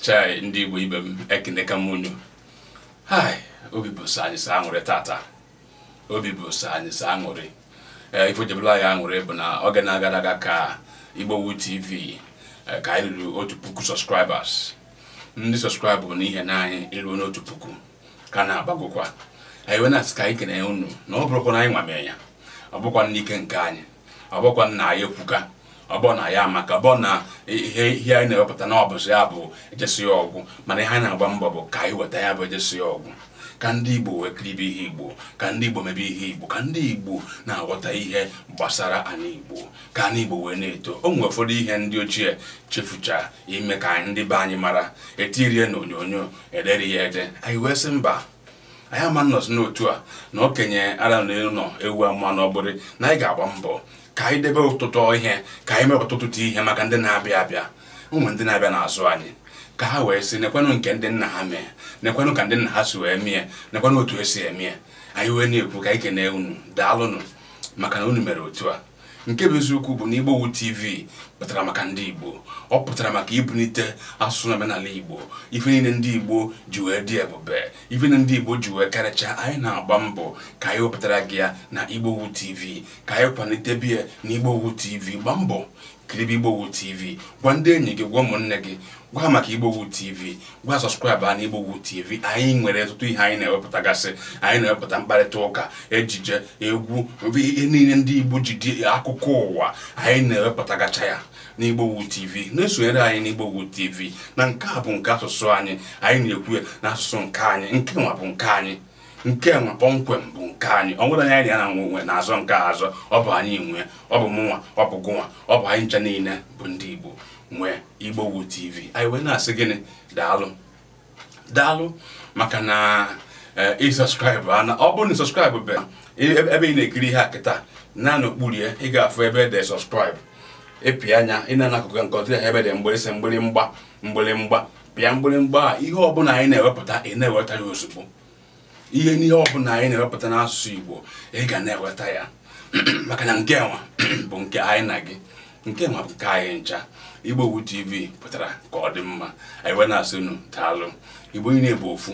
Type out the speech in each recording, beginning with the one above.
chai ndị Igbo ibe m ekeneka m unu obi bụ sọ anyị sọ aṅụrị tata obi bụ sọ anyị sọ aṅụrị ee ife jebela anyị aṅụrị bụ na oge na-agara aga ka Igbowood TV e, ka anyị ruru otu puku sọskraibers ndị sọskraibụ n'ihe na anyị ruo n'otu puku ka na-agbagokwa anyị wee na-asị ka anyị kene unu na ọ bụrụkwa na anyị nwamee ya ọ bụkwa n'ike nke anyị ọ bụkwa na anyị ekwuka ọbọ na ya maka bọ na ihe ihe anyị na-ewepụta na ọbụzi ya bụ ejesi ya ọgwụ mana ihe anyị na-agba mbọ bụ ka anyị weta ya bụ ejesi ya ọgwụ ka ndị Igbo wee kiribe ihe Igbo ka ndị Igbo mebe ihe Igbo ka ndị Igbo na-aghọta ihe gbasara anyị Igbo ka anyị Igbo wee na-eto o nwere ụfọdụ ihe ndị ochie chefucha ime ka ndị be anyị mara etirie na onyonyo ederi ya ede anyị wee sị mba anyị ama nnọzi n'otu a na okenye ara na elu nọ ewu ama na ọ bụrụ na anyị ga-agba mbọ ka anyị debe ụtụtụ ihe ka anyị mee ọtụtụ ihe maka ndị na-abịa abịa ụmụ ndị na-abịa n'azụ anyị ka ha wee sị nekwanụ nke ndị nna ha mee nekwanụ ka ndị nna ha si wee mie nekwanụ otu esi emie anyị wee na-ekwu ka anyị kene unu daalụnụ maka na unu mere otu a nke bụ eziokwu bụ na igbowu TV pụtara maka ndị Igbo ọ pụtara maka ibunite asụsụ na n'ala Igbo ife niile ndị Igbo ji wee dị ebube ife na ndị Igbo ji wee karịcha anyị na-agba mbọ ka anyị wepụtara gị ya na igbowu TV ka anyị kwalite biya na igbowu TV gbaa mbọ kiribe igbowood tv gwa ndị enyi gị gwa ụmụnne gị gwa maka igbowu tv gwa sọskraịbụ anyị na igbowood tv anyị nwere ọtụtụ ihe anyị na-ewepụtagasị anyị na-ewepụta mkparịta ụka ejije egwu ihe niile ndị igbo ji dị akụkọ ụwa anyị na-ewepụtagacha ya na igbowood tv na-esonyere anyị na igbowood tv na nke a bụ nke asụsụ anyị anyị na-ekwu ya na asụsụ nke anyị nke nwa bụ nke anyị nke nwa kpọmkwem bụ nke anyị ọ nwere anyị na nwe nwe na-azọ nke azọ ọ bụ anyị nwe ọ bụ mụnwa ọ bụ gụnwa ọ bụ anyị ncha niile bụ ndị Igbo nwe Igbowood TV anyị wee na-asị gịnị daalụ daalụ maka na e, ịsọskraịbụ ana ọ bụrụ na sọskraịbụ be ebe ị na-ekiri ihe a kịta na n'okpurie ị ga-afụ ebe dị sọskraịbụ ịpịa anya ị na-anakụkọ nke ọtụtụ ebe dị mgbịrịsị mgbịrịmgba mgbịrịmgba pịa mgbịrịmgba a ihe ọbụla anyị na-ewepụta ị na-eweta ozugbo ihe n'ihe ọbụla anyị na-ewepụta n'asụsụ Igbo ị ga na-eweta ya maka na nke nwa bụ nke anyị na gị nke nwa bụ nke anyị ncha Igbowood TV pụtara ka ọ dị mma anyị wee na-asụnụ daalụ Igbo niile bụ ofu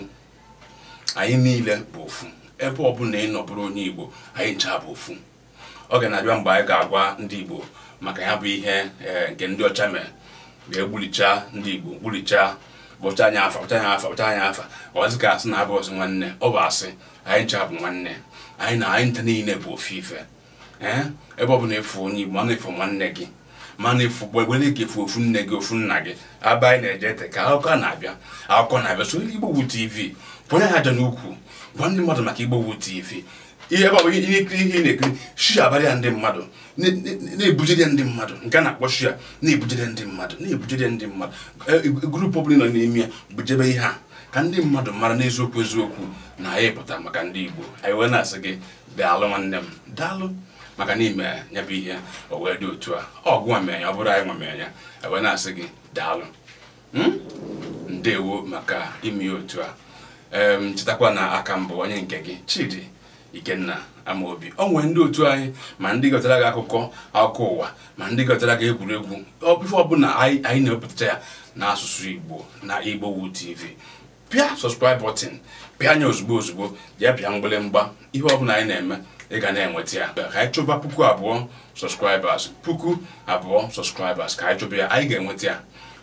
anyị niile bụ ofu ebe ọbụla ị nọ onye Igbo anyị ncha bụ ofu ọ ga na-abịa mgbe anyị ga-agwa ndị Igbo maka ya bụ ihe eh, nke ndị ọcha mere ga ndị Igbo gbulichaa ụcha anya afa ụcha anya afa ụcha anya afa ọzi ka asị na-abụ ọzọ nwanne ọ bụ asị anyị ncha bụ nwanne anyị na anyị nta niile bụ ofu ife ebe ọbụla efu onye Igbo mana efu nwanne gị mana efu gbegbele gị efu ofu nne gị ofu nna gị aba anyị na-eje ete ka akụkọ na-abịa akụkọ na-abịa so Igbowood TV pụnye ha aja n'ukwu gwa ndị mmadụ maka Igbowood TV ihe ebe ọ bụ ihe ikiri ihe na-ekiri shia abalịa ndị mmadụ na-ebujide ndị mmadụ nke a na-akpọ shia na-ebujide ndị mmadụ na-ebujide ndị mmadụ e, e, grupu ọbụla nọ n'ime ya bujebe ihe a ka ndị mmadụ mara n'eziokwu eziokwu na anyị pụta maka ndị Igbo anyị wee na-asị gị daalụ nwanne m daalụ maka na ime ya bụ ihe o wee dị otu a ọgụ ọ bụrụ anyị nwamenya anyị e wee na-asị gị daalụ hmm? ndewo maka ime otu a chetakwa na aka mbụ onye nke gị Chidi Ikenna amaobi o nwere ndị otu anyị ma ndị gọtara gị akụkọ akụkọ ụwa ma ndị gọtara gị egwuregwu ife ọbụla anyị na-ewepụta ya n'asụsụ Igbo na wu TV pịa subscribe button pịa anya ozugbo ozugbo ya pịa mgbịrịmgba ihe ọbụla anyị na-eme ị ga na-enweta ya ka anyị chụba puku abụọ sọskraibers puku abụọ sọskraibers ka anyị chụba ya anyị ga-enweta ya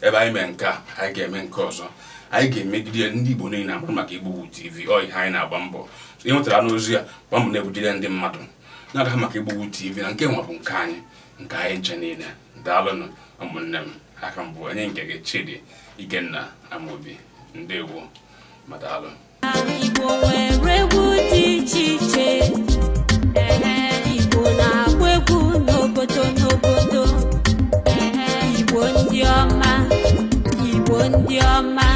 ebe anyị mee nke a anyị ga-eme nke ọzọ anyị ga-emegide ndị Igbo niile agbụ maka Igbo TV ọ ha anyị na-agba mbọ ihe nwetara n'ozi ya gbaa na-ebudire ndị mmadụ na-aga maka Igbo TV na nke nwa bụ nke anyị nke anyị nche niile daalụnụ ụmụnne m aka mbụ onye nke gị Chidi Ikenna Amobi ndewo ma daalụ egwu dị iche iche Igbo na-agba n'obodo n'obodo Igbo ndị ọma Igbo ndị ọma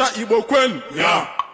Igbo Kwen. Yeah.